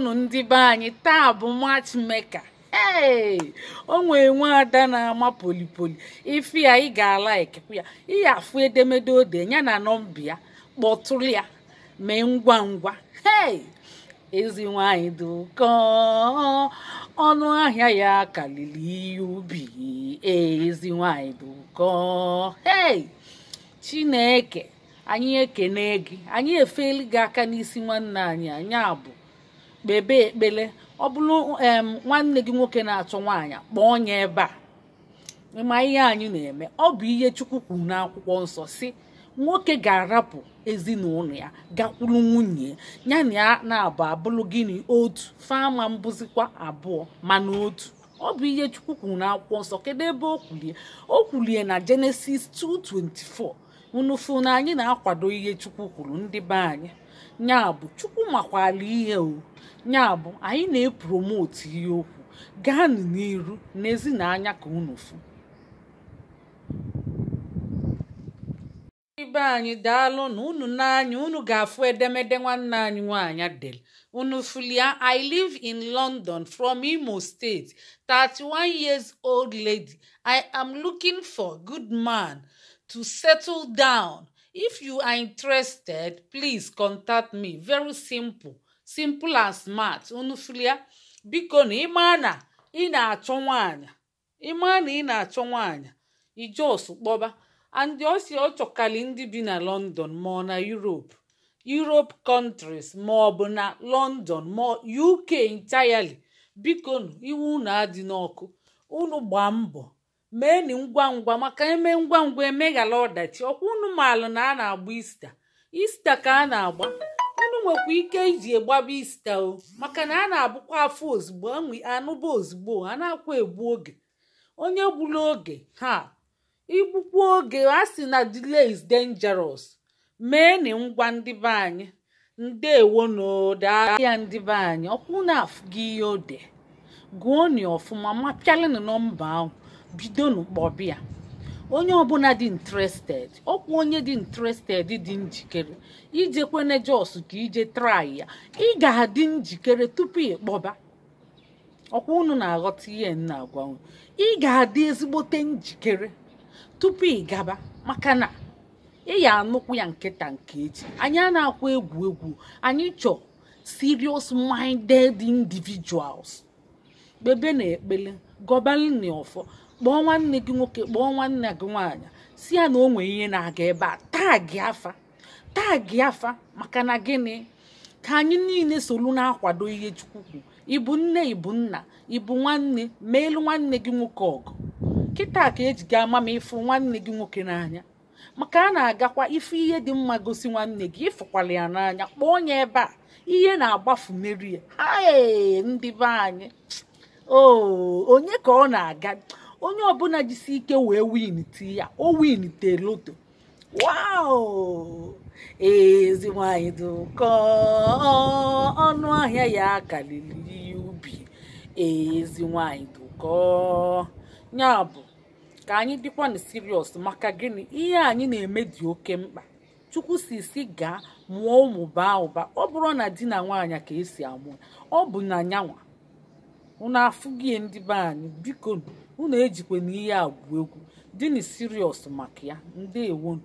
unu ndị be anyị taa bụ matchmaker ee o nwere nwe ada na-ama polipoli ife ya ị ga ya ihe afụ edemede ode ya na nọmba ya kpọtụrụ ya mee ngwa ngwa ee ezi nwanyị dị ọnụ ahịa ya karịrị ihe ubi ezi nwanyị dị ee chineke anyị ekene gị anyị efeli gị aka n'isi nwanne anyị anyị abụ kpebe ekpere ọ bụrụ nwanne gị nwoke na-achọ nwaanyị kpọọ onye ebe a ịma ihe anyị na-eme ọ bụ ihe Chukwu kwuru n'akwụkwọ nsọ si nwoke ga-arapụ ezinụlọ ya gakwuru nwunye ya na ya na-abụ abụrụ gịnị otu fama mbụzikwa abụọ mana otu ọ bụ ihe Chukwu kwuru n'akwụkwọ nsọ kedu ebe o kwulie o kwulie na Jenesis 2:24 unufu na anyị na-akwado ihe chukwu kwuru ndị be anyị bụ chukwu makwala ihe o bụ anyị na-epromotu ihe okwu gaa n'iru n'ezi na ka unufu ibe anyị daalụ na unu n'anya unu ga-afụ edemede nwanne anyị nwanyị adele unu fulia i live in london from imo state 31 years old lady i am looking for good man. to settle down. If you are interested, please contact me. Very simple. Simple and smart. Unu biko na ịma na ị na-achọ nwaanyị ịma ị na-achọ ijos kpọba osi ọ chọkali bi na London ma ọ na Europe Europe countries ma ọ bụ na London ma UK entirely bikonu iwu unu adị n'ọkụ unu gbaa mbọ meeni ngwa ngwa maka eme ngwa ngwa emeghala ọdachi ọkwa unu na a na-agba ista ista ka a na-agba unu nwekwa ike iji egbaba ista o maka na a na-abụkwa afọ ozugbo anụba ozugbo a na-akwa egbu oge onye gburu oge ha igbukwu oge a sị na delay is dangerous meeni ngwa ndị be anyị ndewonu daahịa ndị be anyị ọkwụ na-afụ gị ihe ode gụọ ọfụma mapialinu nọmba ahụ bido kpọbịa onye ọbụla dị interested ọkwa onye dị interested dị njikere ijekwene jos ka ije trai ya ị ga-adị njikere tupu kpọba ọkwa unu na-aghọta ihe nna agwanwe ị ga-adị ezigbote njikere tupu ị gaba maka na ị ya anụkwu ya nkịta nke echi anyị a na-akwa egwu egwu anyị chọọ serious minded individuals kpebe na ekpele gọbalin na kpọọ nwanne gị nwoke kpọọ nwanne gị nwaanyị si ya na o nwee ihe na-aga ebe a taa gị afa taa gị afa maka na gịnị ka anyị niile solu na-akwado ihe Chukwu ịbụ nne ịbụ nna ịbụ nwanne ma elu nwanne gị nwoke ọgụ kịta ka eji ga ama ma ịfụ nwanne gị nwoke n'anya maka a na-agakwa ife ihe dị mma gosi nwanne gị ịfụkwala ya n'anya kpọọ ya ebe a ihe na-agbafu meri ya ndị be anyị onye ka ọ na-aga onye ọbụla jisi ike wee win ti ya o win te loto wow ezi nwanyị dị ọnụ ahịa ya karịrị ubi ezi nwanyị dị ya bụ ka anyị dịkwa na sirius maka gịnị ihe anyị na-eme dị oke mkpa chukwu si si gaa mụọ ụmụ baa ụba ọ bụrụ na di na nwaanyị ka esi amụ ọ bụ na nyanwa unu afụghị ndị be anyị biko unu ejikwa na ihe a bụ egwu na siriọs maka ya ndị ndewonu